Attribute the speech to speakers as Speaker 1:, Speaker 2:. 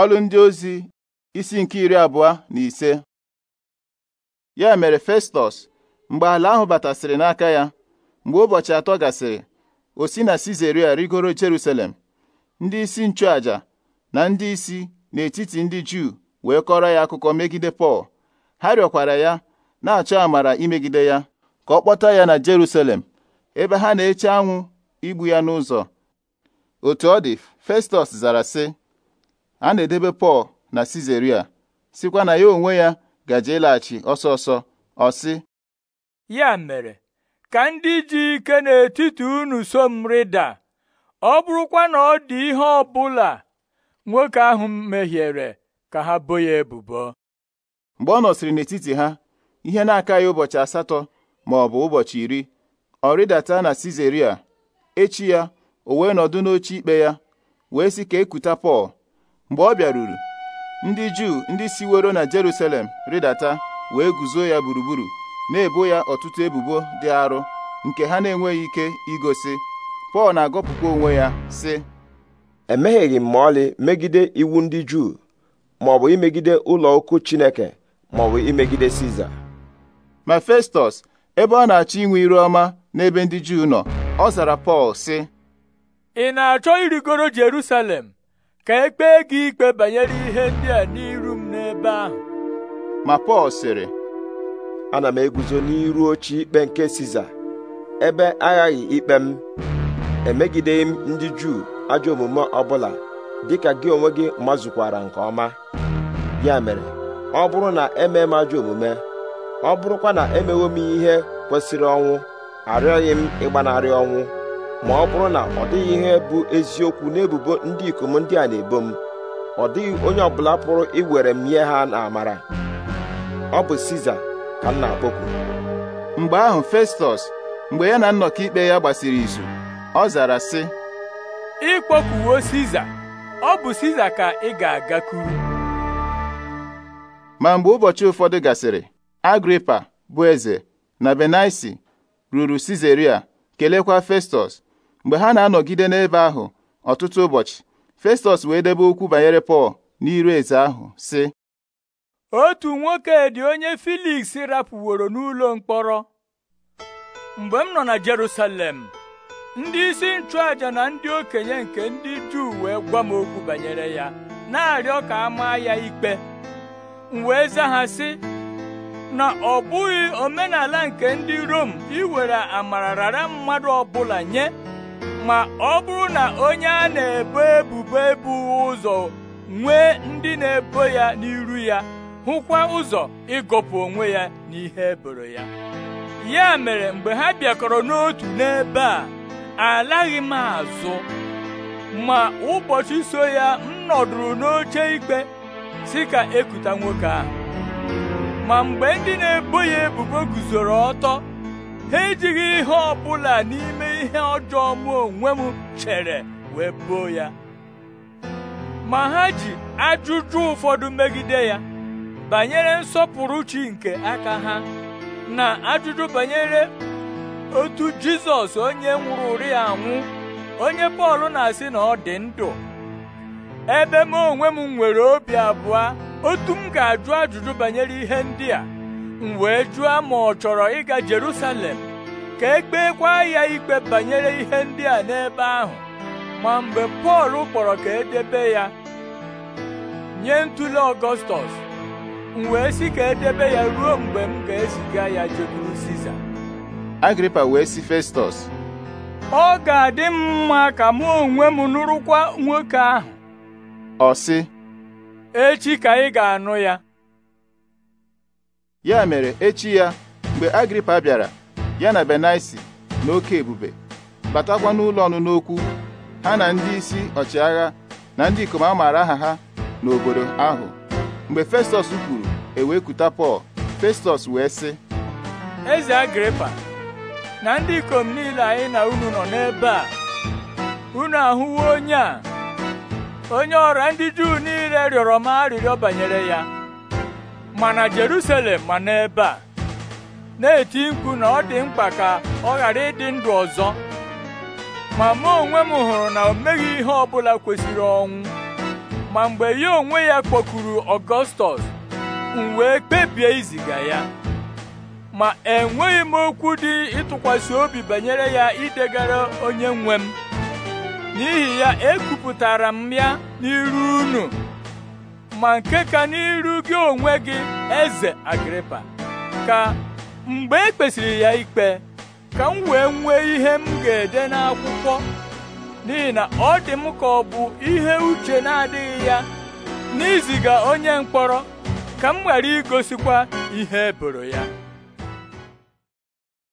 Speaker 1: ọlụ ndị ozi isi nke iri abụọ na ise ya mere Festọs mgbe ala ahụ batasịrị n'aka ya mgbe ụbọchị atọ gasịrị osi na Sizeria rigoro Jerusalem ndị isi nchụaja na ndị isi n'etiti ndị Juu wee kọrọ ya akụkọ megide Pọl ha rịọkwara ya na-achọ amara imegide ya ka ọ kpọta ya na Jerusalem ebe ha na-eche anwụ igbu ya n'ụzọ otu ọ dị Festọs zara sị a na-edebe Pọl na Sizeria sikwa na ya onwe ya gaje ịlaghachi ọsọ ọsọ ọ sị
Speaker 2: ya mere ka ndị ji ike n'etiti unu so m rịda ọ bụrụkwa na ọ dị ihe ọ bụla nwoke ahụ mehiere ka ha bo ya ebubo mgbe ọ nọsịrị n'etiti ha
Speaker 1: ihe na-aka ya ụbọchị asatọ ma ọ bụ ụbọchị iri ọ rịdata na Sizeria echi ya o wee nọdụ n'oche ikpe ya wee sị ka ekuta Pọl mgbe ọ bịaruru ndị juu ndị siwero na Jerusalem rịdata wee guzo ya gburugburu na-ebo ya ọtụtụ ebubo dị arụ nke ha na-enweghị ike igosi
Speaker 3: Pọl na-agọpụkwa onwe ya sị emegheghị m ma ọlị megide iwu ndị juu maọbụ imegide ụlọ ukwu Chineke maọbụ imegide Siza ma Festọs ebe ọ na-achọ inwe iru ọma n'ebe ndị juu nọ ọ
Speaker 2: zara Pọl sị ị na-achọ irigoro Jerusalem ka e kpee gị ikpe banyere ihe ndị a n'iru m n'ebe ahụ ma Pọl sịrị
Speaker 3: ana m eguzo n'iru oche ikpe nke Siza ebe aghaghị ikpe m emegideghị m ndị Juu ajọ omume ọbụla dịka gị onwe gị mazụkwara nke ọma ya mere ọ bụrụ na emee m ajọ omume ọ bụrụkwa na emewo m ihe kwesịrị ọnwụ arịọghị m ịgbanarị ọnwụ ma ọ bụrụ na ọ dịghị ihe bụ eziokwu n'ebubo ndị ikom ndị a na-ebo m ọ dịghị onye ọbụla pụrụ iwere m nye ha n'amara ọ bụ Siza ka m na-akpọku mgbe ahụ Festọs mgbe ya na nnọkọ ikpe ya gbasiri
Speaker 1: izu
Speaker 2: ọ zara sị ịkpọkuwo Siza ọ bụ Siza ka ị ga-agakwuru
Speaker 1: ma mgbe ụbọchị ụfọdụ gasịrị Agripa bụ eze na Benaisi ruru Sizeria kelekwa Festọs mgbe ha na-anọgide n'ebe ahụ ọtụtụ ụbọchị Festus wee debe okwu banyere Pọl n'iru eze ahụ sị
Speaker 2: otu nwoke dị onye Filiks rapụworo n'ụlọ mkpọrọ mgbe m nọ na Jerusalem ndị isi nchụaja na ndị okenye nke ndị Juu wee gwa m okwu banyere ya na-arịọ ka a maa ya ikpe m wee zaa ha sị na ọ bụghị omenala nke ndị Rom iwere amara rara mmadụ ọbụla nye ma ọ bụrụ na onye a na-ebo ebubo ebughị ụzọ nwee ndị na-ebo ya n'iru ya hụkwa ụzọ ịgọpụ onwe ya n'ihe eboro ya ya mere mgbe ha bịakọrọ n'otu n'ebe a alaghị m azụ ma ụbọchị so ya m nọdụrụ n'oche ikpe si ka ekuta nwoke ahụ ma mgbe ndị na-ebo ya ebubo guzoro ọtọ ha ejighị ihe ọ bụla n'ime ihe ọjọọ mụ onwe m chere wee boo ya ma ha ji ajụjụ ụfọdụ megide ya banyere nsọpụrụ chi nke aka ha na ajụjụ banyere otu jizọs onye nwụrụ ya anwụ onye bọọlụ na-asị na ọ dị ndụ ebe m onwe m nwere obi abụọ otu m ga-ajụ ajụjụ banyere ihe ndị a m wee jụọ ma ọ chọrọ ịga Jerusalem ka e gbekwa ya ikpe banyere ihe ndị a n'ebe ahụ ma mgbe Pọl kpọrọ ka edebe ya nye ntụle Ọgọstọs m wee sị ka edebe ya ruo mgbe m ga-eziga ya jekwuru Siza
Speaker 1: Agripa wee sị Festọs
Speaker 2: ọ ga-adị m mma ka mụ onwe m nụrụkwa nwoke ahụ ọ sị echi ka ị ga-anụ ya
Speaker 1: ya mere echi ya mgbe agripa bịara ya na benaisi na oke ebube batakwa n'ụlọ ọnụnụ okwu ha na ndị isi ọchịagha na ndị ikom a aha ha n'obodo ahụ mgbe Festus kwuru ewekuta pọl festọs
Speaker 2: wee sị eze agripa na ndị ikom niile anyị na unu nọ n'ebe a unu ahụwo onye a onye ọra ndị juu niile rịọrọ m arịrịọ banyere ya ma na Jerusalem ma n'ebe a na-eti mkpu na ọ dị mkpa ka ọ ghara ịdị ndụ ọzọ ma mụ onwe m hụrụ na o meghị ihe ọbụla kwesịrị ọnwụ ma mgbe ya onwe ya kpọkuru Ọgọstọs m wee kpebie iziga ya ma enweghị m okwu dị ịtụkwasị obi banyere ya idegara onye nwe m n'ihi ya ekwupụtara m ya n'iru unu ma nke ka n'iru gị onwe gị eze agripa ka mgbe e kpesịrị ya ikpe ka m wee nwee ihe m ga-ede n'akwụkwọ n'ihi na ọ dị m ka ọ bụ ihe uche na-adịghị ya n'iziga onye mkpọrọ ka m ghara igosikwa ihe eboro ya